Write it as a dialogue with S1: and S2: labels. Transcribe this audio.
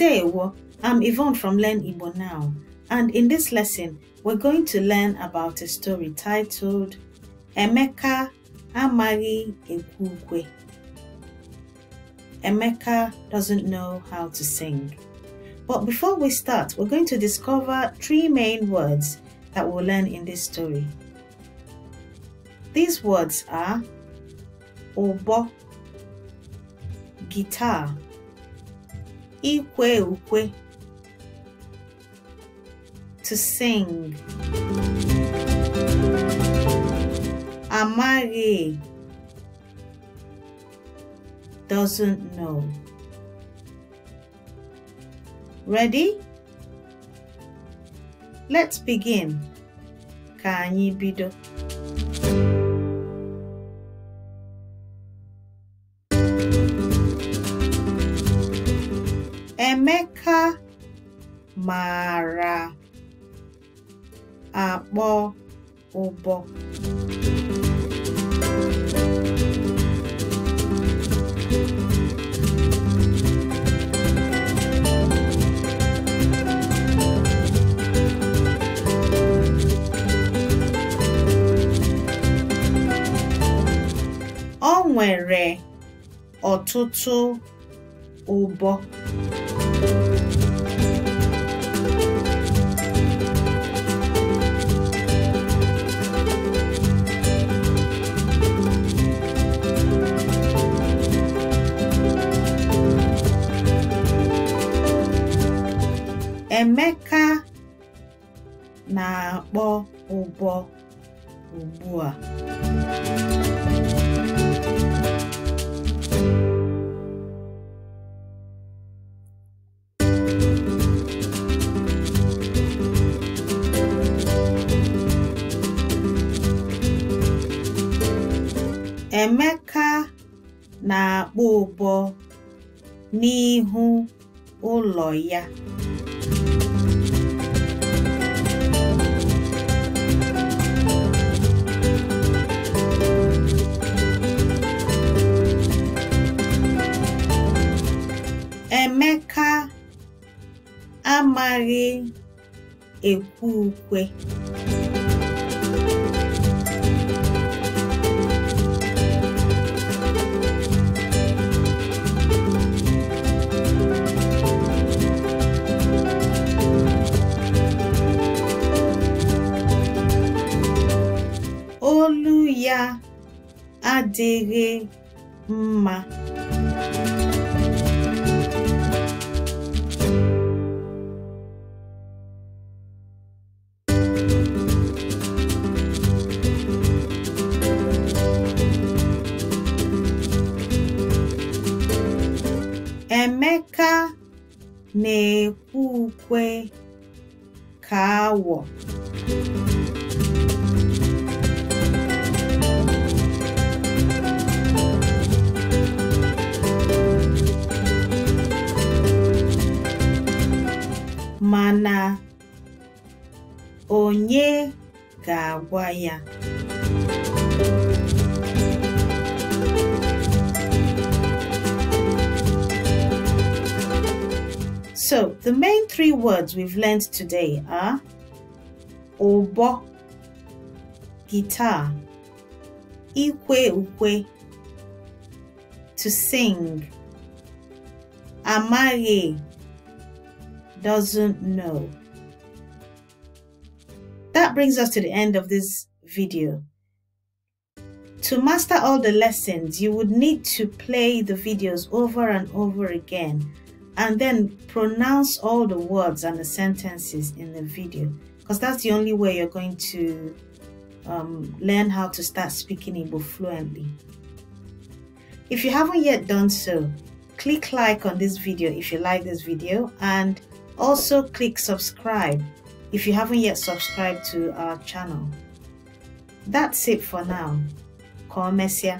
S1: Today, I'm Yvonne from Learn Igbo Now, and in this lesson, we're going to learn about a story titled Emeka Amari Ekwukwe. Emeka doesn't know how to sing. But before we start, we're going to discover three main words that we'll learn in this story. These words are obo, guitar, ikwe ukwe to sing amaghị doesn't know ready let's begin ka anyị bido Emeka maara akpọ ụbọ O nwere ọtụtụ ụbọ Emeka na-akpọ ụbọ ugbu a. Emeka na-akpọ ụbọ n'ihu ụlọ ya. Emeka amaghị ekwe ukwe. adịghị mma. Emeka na-ekwe ukwe ka awọ. onye ga-agwa ya? So, the main three words we've learned today are obo, guitar, ikwe ukwe, to sing, Amari doesn't know. That brings us to the end of this video. To master all the lessons, you would need to play the videos over and over again and then pronounce all the words and the sentences in the video because that's the only way you're going to um, learn how to start speaking Igbo fluently. If you haven't yet done so, click like on this video if you like this video and also click subscribe if you haven't yet subscribed to our channel. That's it for now. Komesia.